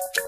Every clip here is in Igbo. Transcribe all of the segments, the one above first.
Thank you.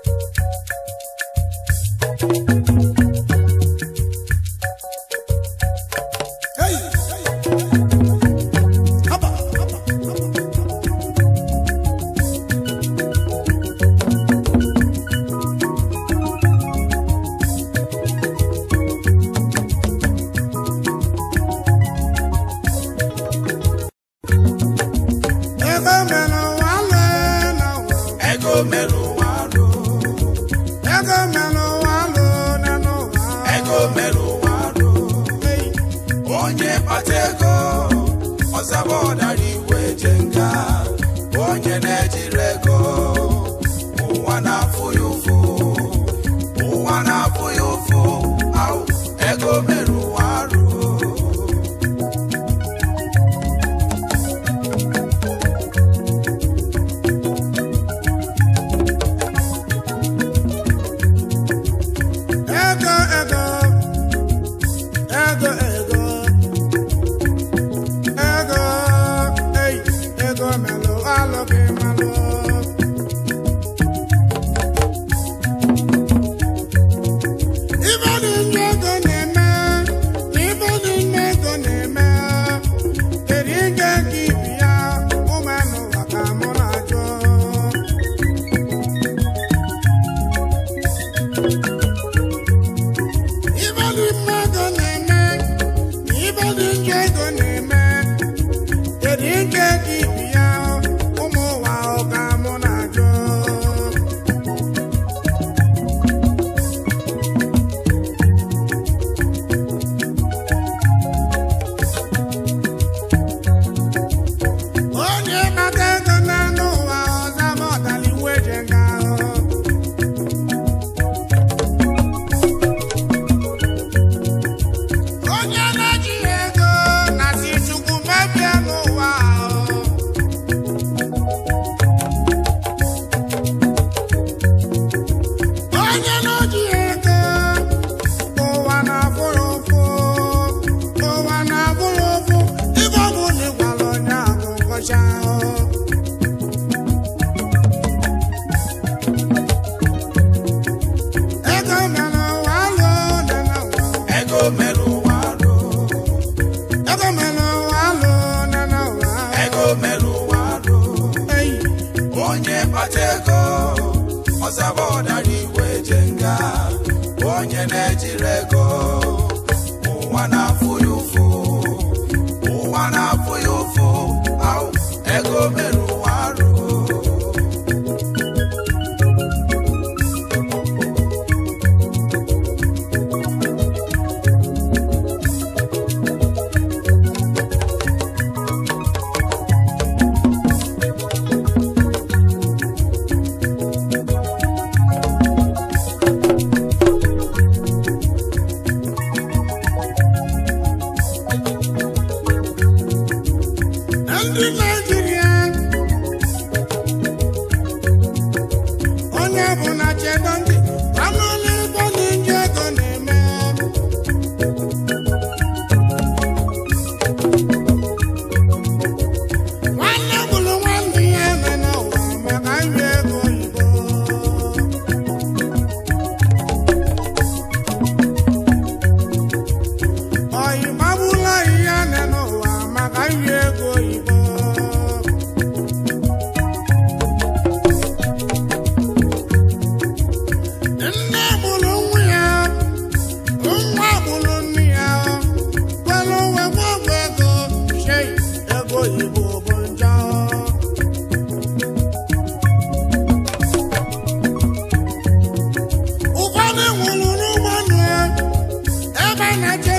when I get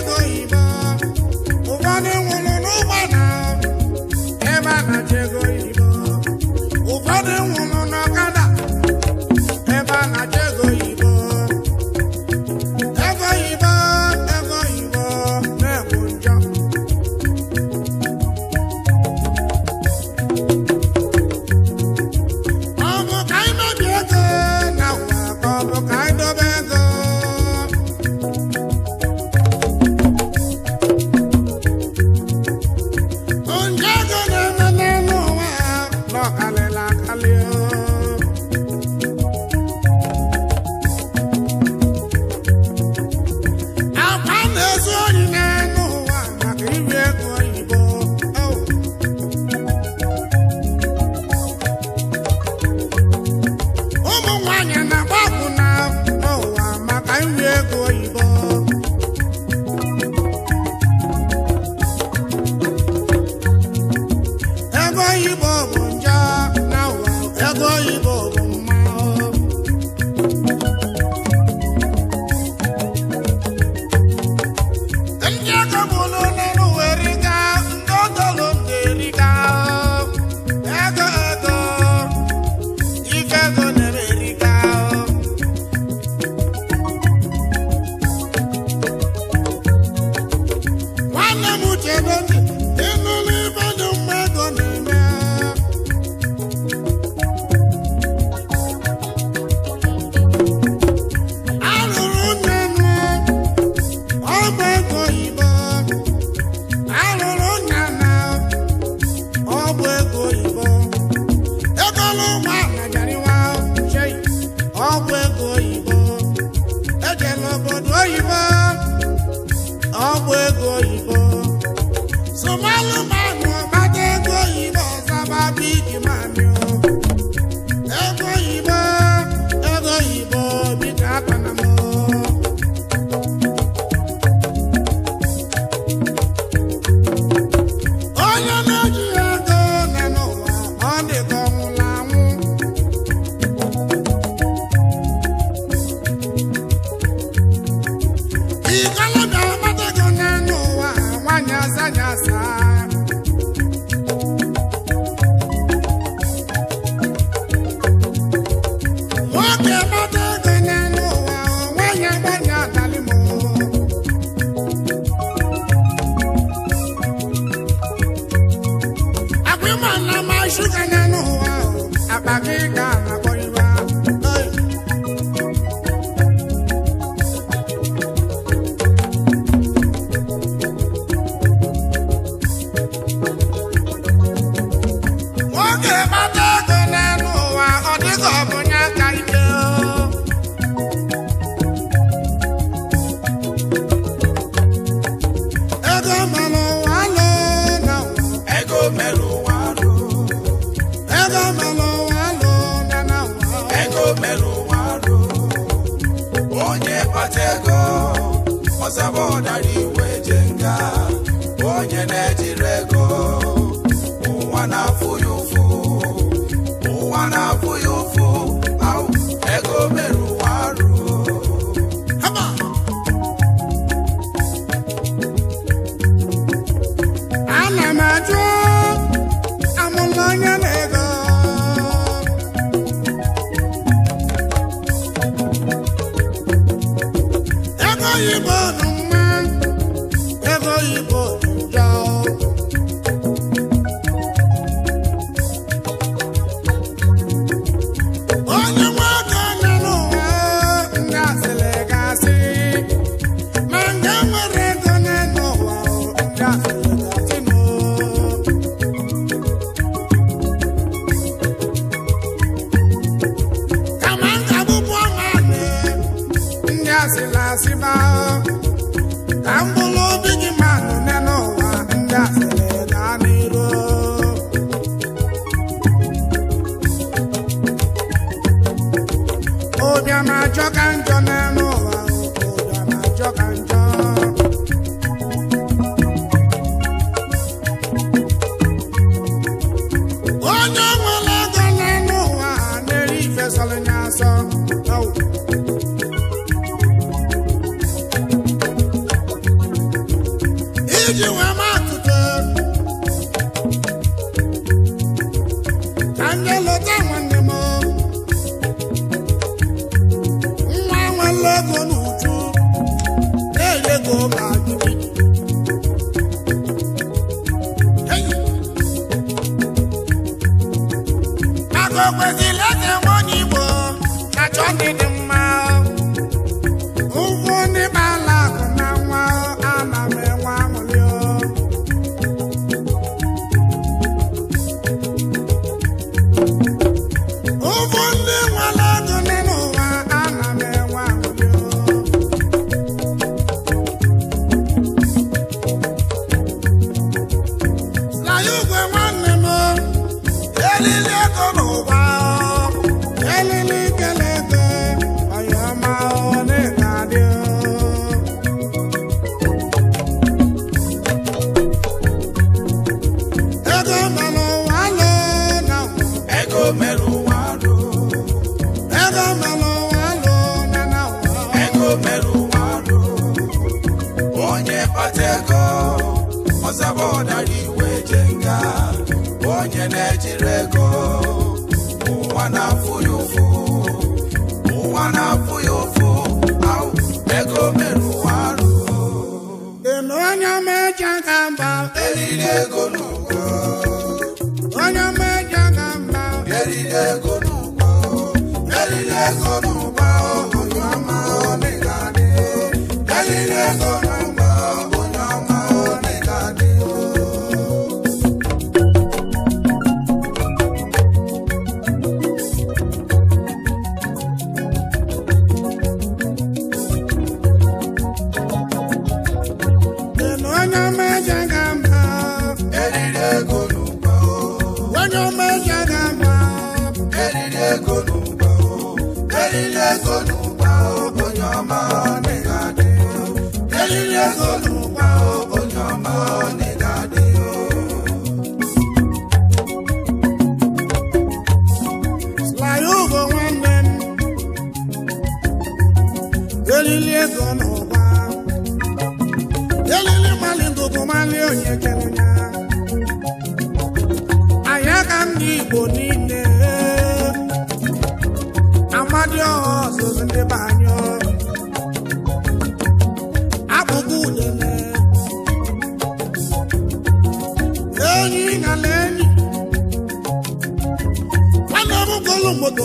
asịlasị ma ka elili ego n'ụwa niile ego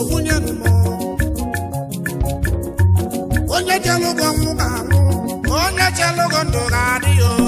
nwunye onye chelụgo nwụ ga-anwụ onye chelụgo ndụ ga-adị ya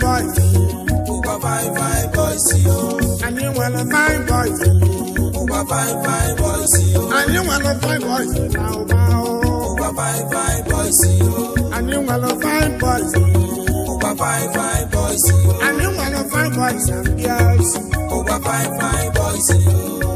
boy Uba fine fine boy see yo And you wanna fine boy Uba fine fine boy see yo And you wanna fine boy Bow bow Uba fine fine boy see yo And you wanna fine boy Uba fine fine boy see yo And you wanna fine boy Some girls Uba fine fine boy see yo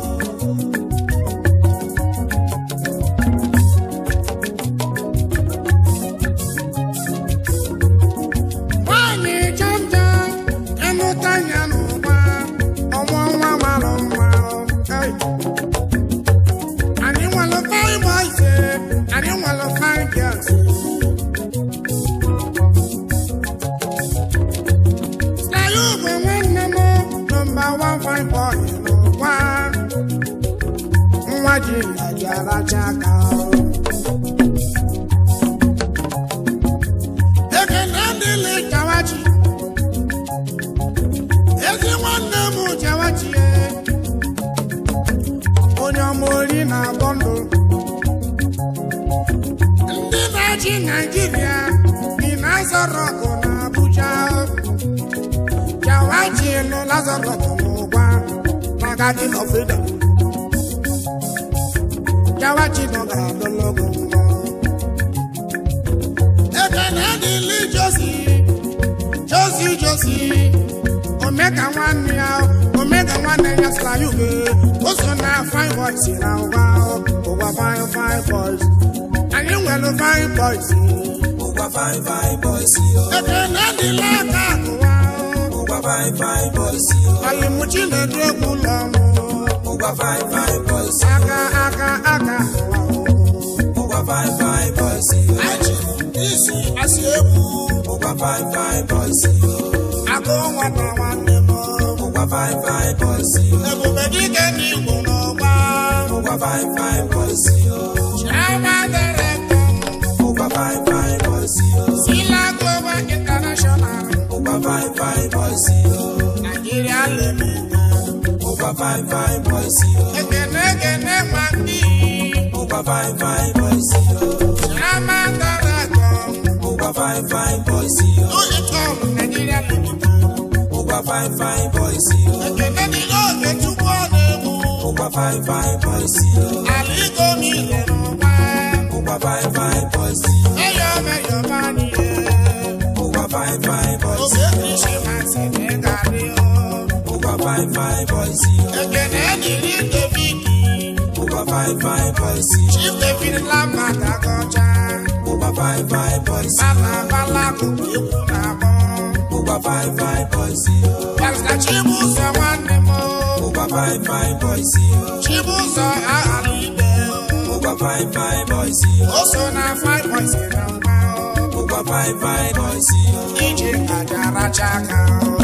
Ndị nwanne m onye na-agbọ ndụ ndị na naijiria dị a na abuja jawachi nụ lazọrọgụ n'ụgwa maka freedom Jawachibonga Dologo. Ekenadi li Josi, Josi Josi, Omega one now, Omega one and just like you go. Also now fine voice in our wow, over fine fine voice. And you will fine voice. Over fine fine voice. Ekenadi la kakua. Over fine fine voice. Alimuchi na dregulamu. Uber fine fine boys. Aka aka aka. Uber fine fine boys. Aji isi asiemu. Uber fine fine boys. Ako nwana nwanne m. Uber fine fine boys. Ebube dike ni igbo n'ọgba. Uber fine fine boys. Chiama dere nkọ. Uber fine fine boys. Sila Global International. Uber fine fine boys. Nigeria lemi. Uba fine fine boys yo. Gene gene mandi. Uba fine fine boys yo. Shama tarako. Uba fine fine boys yo. Ole tom Nigeria lukutu. Uba fine fine boys yo. Gene ni o ke chukwa nemu. Uba fine fine boys yo. Aliko mi lenu pa. Uba fine fine boys yo. Eyo me yo mani. Uba fine fine boys yo. Obe ni fine fine boys yìí. ẹgbẹ́ náà ní ní David. mo bá fine fine boys yìí. Chief David lápàtà kọjá. mo bá fine fine boys yìí. bálabàlà kò gbé kú náà mọ́. mo bá fine fine boys yìí. pásítọ̀ chibu sọ wá ní mọ́. mo bá fine fine boys yìí. chibu sọ àhàlù ibẹ̀. mo bá fine fine boys ó sọ na fine boys kìlọ̀ gbà ó. mo bá fine fine boys yìí. ìjì àjàrà jákàá.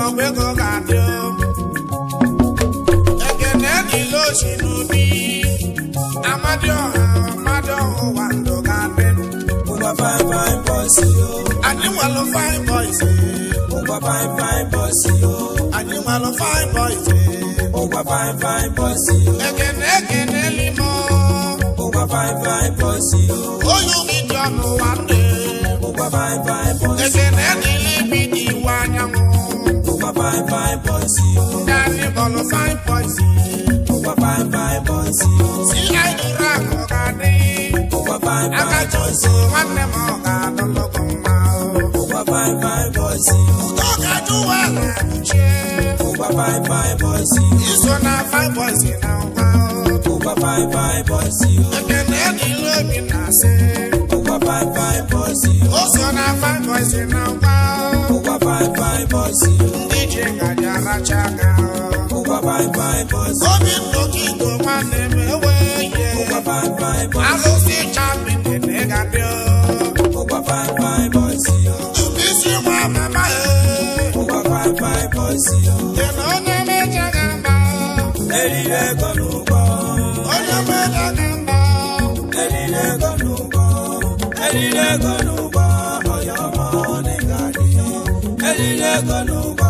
lọ́pẹ́ kò kàdé o. Ẹ̀gẹ̀dẹ̀ ni ló ṣì nù bí. Amádéọ̀hán Amádéọ̀hán wà ló kàdé. Mo fine fine bọ́ọ̀sì o. Àdéhùn àlọ́ fine fine fine bọ́ọ̀sì o. Àdéhùn àlọ́ fine bọ́ọ̀sì. Mo gba fine fine bọ́ọ̀sì o. Ẹ̀gẹ̀dẹ̀ ẹ̀gẹ̀dẹ̀ fine fine bọ́ọ̀sì o. Oyún mi jọ̀nù wá dé. Mo gba fine fine bọ́ọ̀sì o fine fine boys yìí. Dání bọ̀lọ̀ fine boys yìí. Ó wá fine fine boys yìí. Sí àyíká kò ká dé. Ó wá fine I got yìí. Akájọ́sí wọn lè mọ ọ̀gá lọ́lọ́gbọ̀n máa o. Ó wá fine fine boys yìí. Tọ́kadú wà láàbùjẹ. Over wá fine fine boys yìí. Ìsọ̀nà fine boys yìí náà wá o. Ó wá fine fine boys yìí. Ẹ̀kẹ́lẹ́ ni lómi náà I Ó Over fine fine boys yìí. Ó I find boys yìí náà wá o. Ó wá fine fine boys yìí. ngaji aracha aka obi chapi ga-adị ụbisi nwa mama onye onye eriri ego eriri ego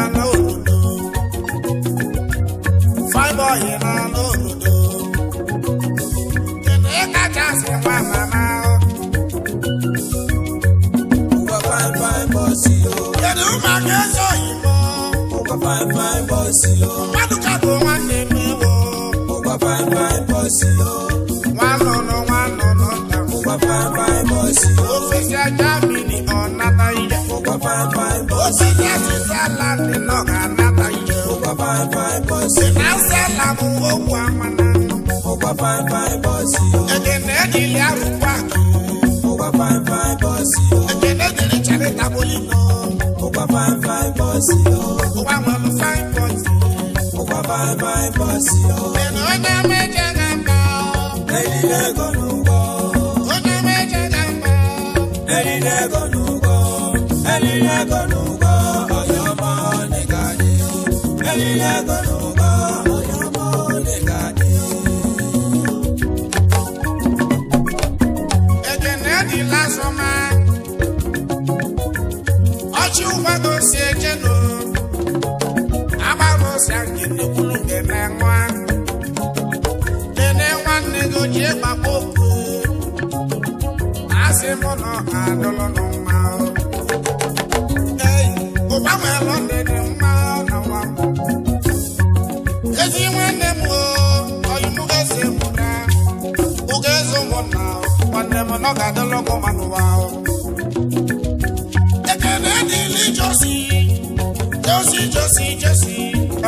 papa mama o. Mo gba fine fine bọ́ọ̀sì o. Yẹ̀dù máa kẹ́ sọ ìmọ̀. Mo gba fine fine o. Mádùúkà tó wá ṣe mí o. Mo gba fine fine bọ́ọ̀sì o. Wà á nọ̀nà wà á nọ̀nà tà. Mo gba fine fine o. Òfìsì ajá mi ni ọ̀nà táyé. Mo gba fine fine o. Òfìsì ẹ̀sìn sálà nínú ọ̀nà táyé. Mo gba fine fine fine bọ́ọ̀sì o. ẹ̀gẹ̀dẹ̀ ni ilé arúgbó àgbò. ó wá fine fine bọ́ọ̀sì o. ẹ̀gẹ̀dẹ̀ ni ilé ìjàre tábólì náà. ó wá fine fine bọ́ọ̀sì o. ó wá mọ̀ lọ fine bọ́ọ̀sì. ó wá fine fine bọ́ọ̀sì o. ẹ̀nà ọ̀nà méje ń bọ̀. ẹ̀yìn lẹ́gọ̀nù bọ̀. ọ̀nà méje ń bọ̀. ẹ̀yìn lẹ́gọ̀nù bọ̀. ẹ̀yìn lẹ́gọ̀nù bọ̀. ọ̀yọ́ mọ́ nígbà ni. ẹ̀yìn lẹ́gọ̀nù ụbọchị agịrị unu ga-eme nwa nene nwanne gị oji gbakpa okwu asị m na ọha ga-adọlọ n'ụma ei ụgbanweelụ ndị mma na nwa ezi nwanne m oyimụgazi mụna ụgaezi ụmụnna nwanne m na ọ ga ekele josi josi josi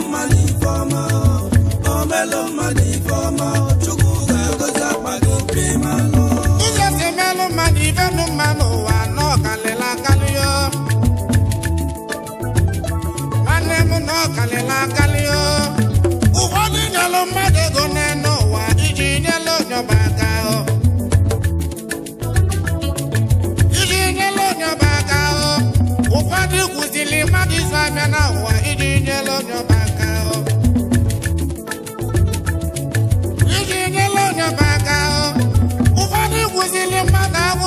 my life.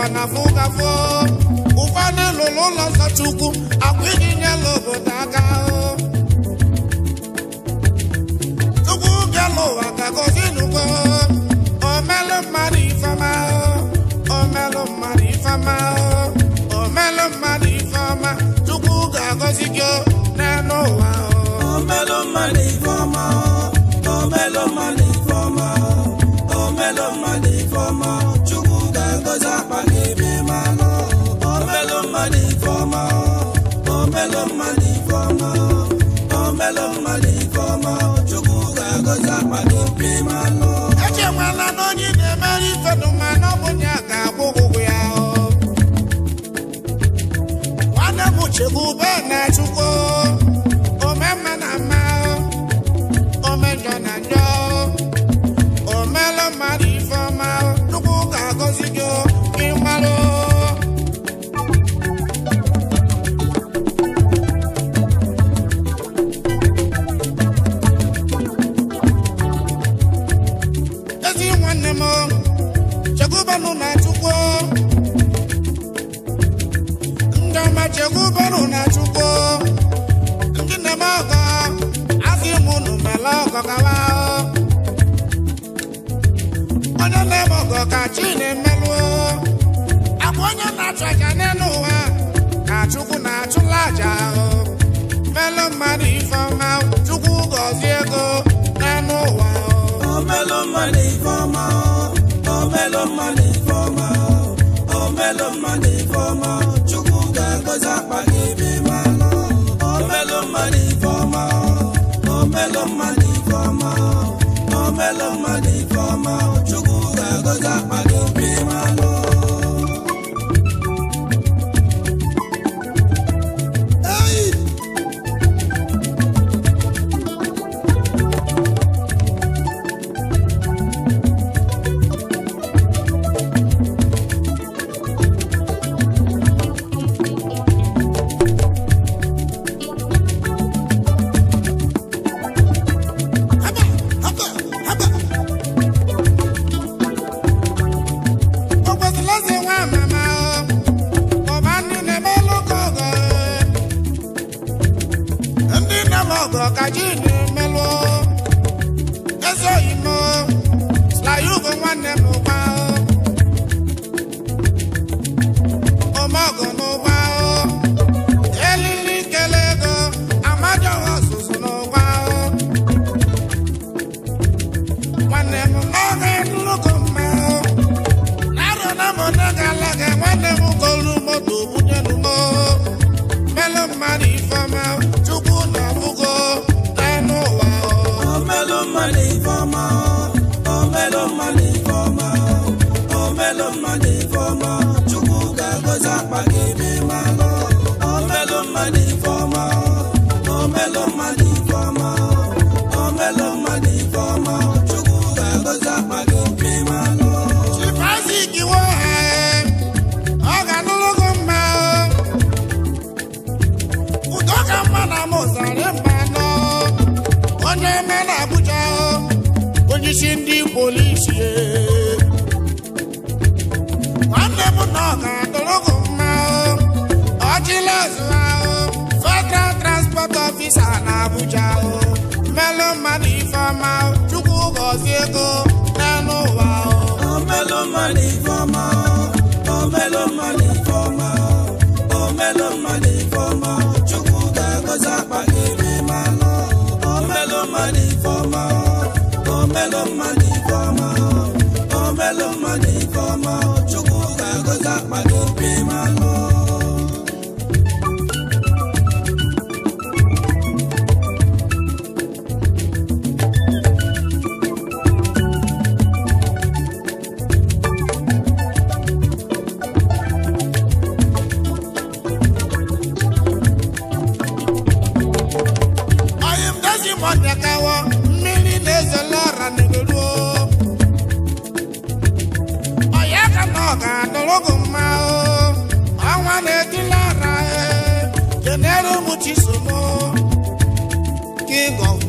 ụwa na ụkwa na lụrụ ụlọ nsọ chukwu akwa iji obodo aka tupu bịa ụwa ka gozinugo omelụ mmadụ ifeọma omelụ mmadụ ifeọma omelụ mmadụ ifeọma tupu ga-agọzi gị n'elu ụwa omelụ mmadụ ifeọma mmadụ move back now. aja ahụ melụ mmadụ ifeọma chukwu gọzie ego n'anụ ụwa omelụ mmadụ ifeọma omelụ mmadụ ifeọma omelụ mmadụ ifeọma chukwu ga-agọzi akpa gị ebe mmanụ omelụ mmadụ ifeọma omelụ mmadụ ifeọma omelụ mmadụ ifeọma chukwu ga-agọzi akpa gị Abuja o melon mani fama o Chukwu gọzie ego n'elu wa. o Melo mani fama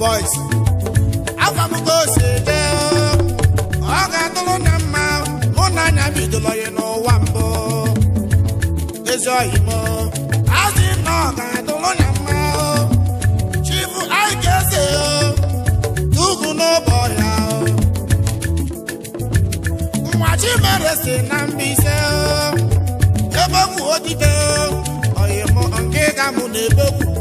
boys afọ m ka o si dị ọ ga-atụrụ na mma mụ na anya bidoro ya n'ụwa mbụ ezi oyi m azị na ọ ga-atụrụ na mma chibu anyị ga-ese tugu n'ụbọ ya nwa chimere si na mbise ebegwu odide oyi m nke ga mụ na ebegwu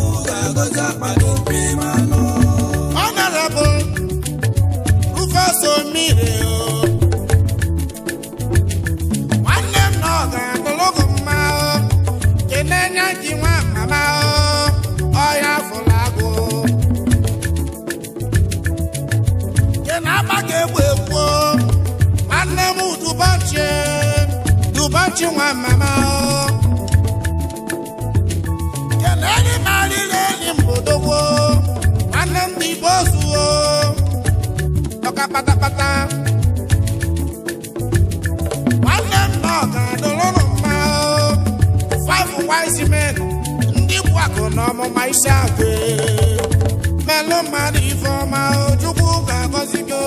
ga akpado mpema nọ Honorable Rufus Omire oh. nwanne m na ọ ga-adụlụgụ mma oh. enye ji nwa mama oh. ọhịa afụla agụ kena agbaka egwu egwu nwanne m dubochi dubochi nwa mama kenenyi marịrị anyị mụdogbo nwanne m igbo zuo ọka patapata nwanne m na ọga dụrụrụ mma five wise men ndị bụ akụ na ọmụma isi akụ melụ mmadụ ifeọma chukwu ga-agọzi gị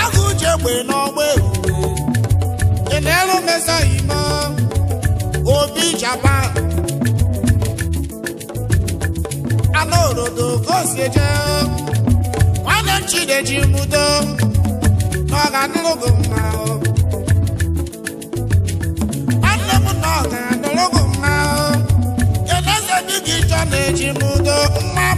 agụ uche egbe n'ọgba ime obi japan anaorodo kosieje nwanne m chideji mudo n'ọganụlụgo mma mma dị gị na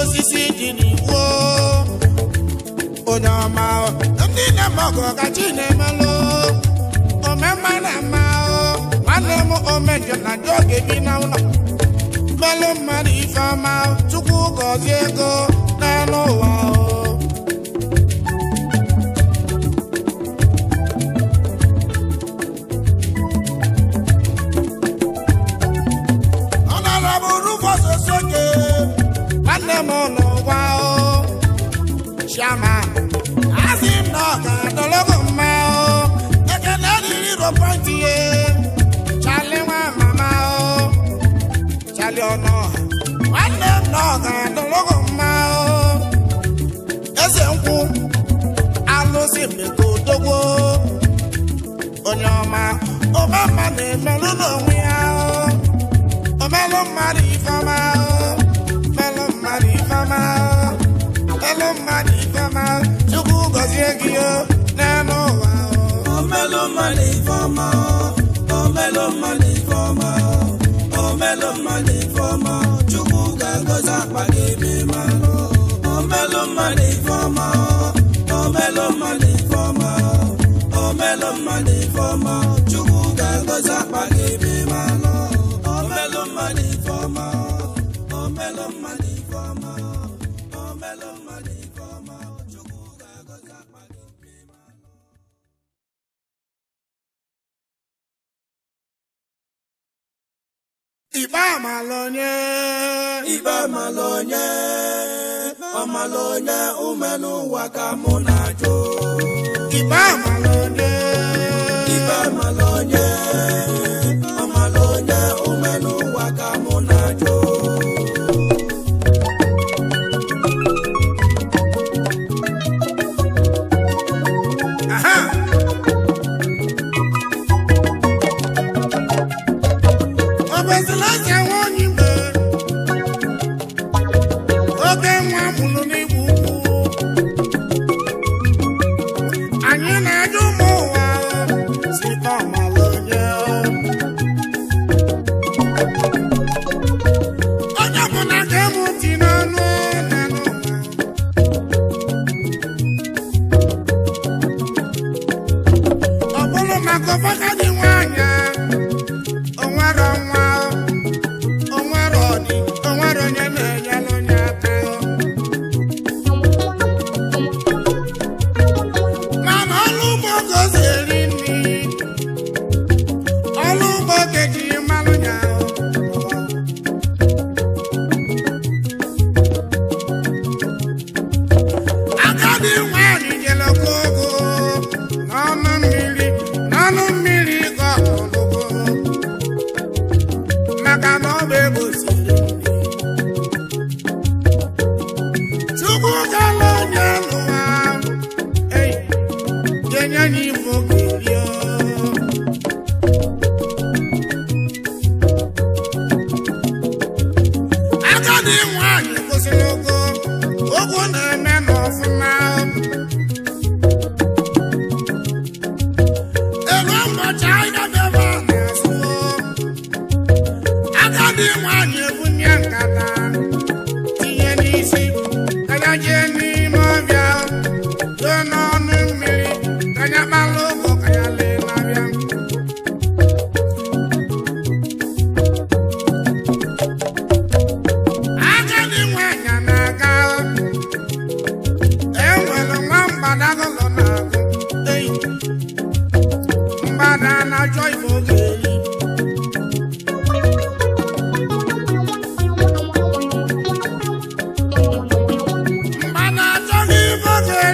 osisi dị n'iwu onye ọma ndị na-emegọ ka na-emelụ omema na mma nwanne m omeje na ndị oge bi na ụlọ melụ mmadụ ife ọma tupu gọzie ego n'elu ụwa mọ̀nà wá o ṣàmà àti nọ̀ọ̀kà dọ́lọ́kọ̀ mma o ekele rírì ro pọ́ǹtì yẹ ṣàlẹ̀ wá màmá o ṣàlẹ̀ ọ̀nà nwanne m nọ̀ọ̀kà dọ́lọ́kọ̀ mma o eze nkwụ alụsị mmekọ odogwo onye ọma ọma mma na-emelụ n'onwe ya o omelụ mmadụ ifeọma o Oh ifeọma Chukwu gọzie gị o melon money. Ikpe amala onye ikpe amala onye amala onye umenụ ụwa ka mụ na-ajụ ikpe amala onye ikpe amala onye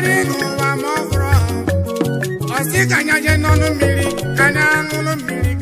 mmeri n'ụwa ma ọ hụrụ ọsị ka anya je n'ọnụ mmiri ka anya ṅụrụ mmiri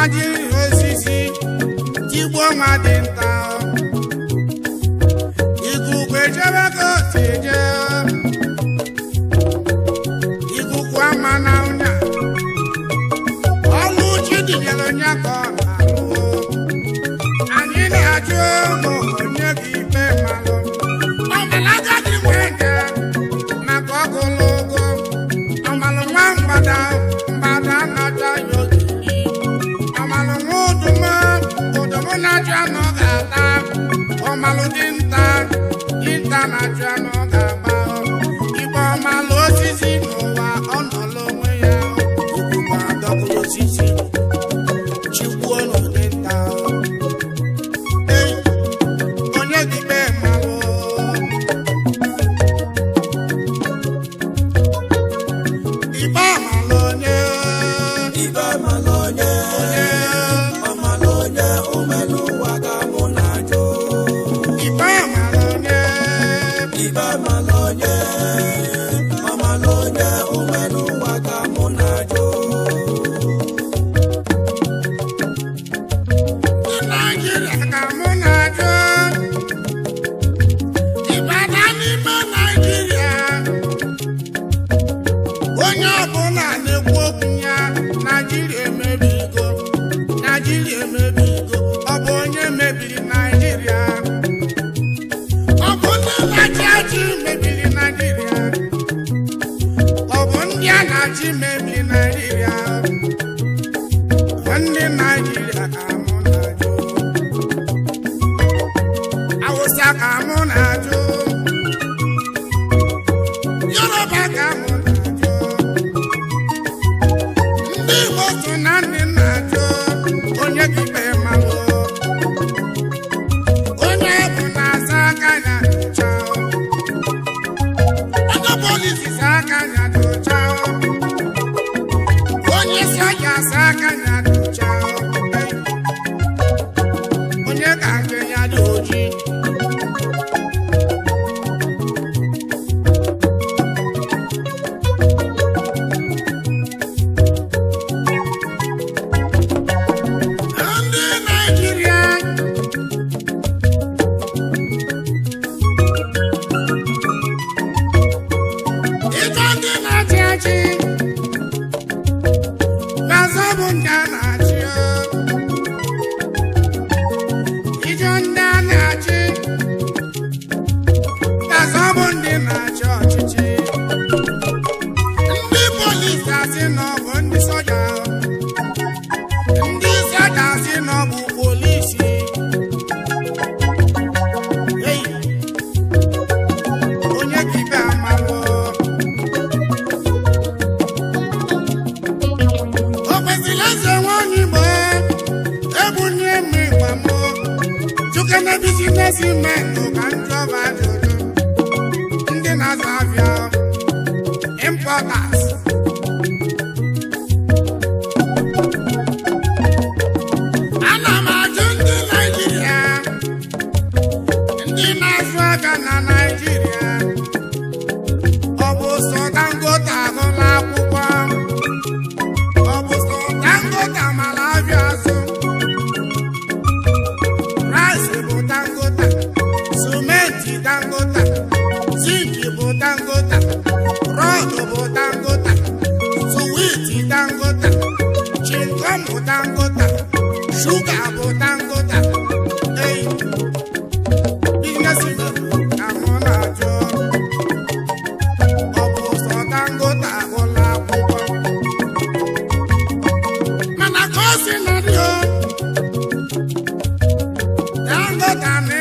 ma jiri osisi tigbuo nwa dị nta I'm drama, drama. Ande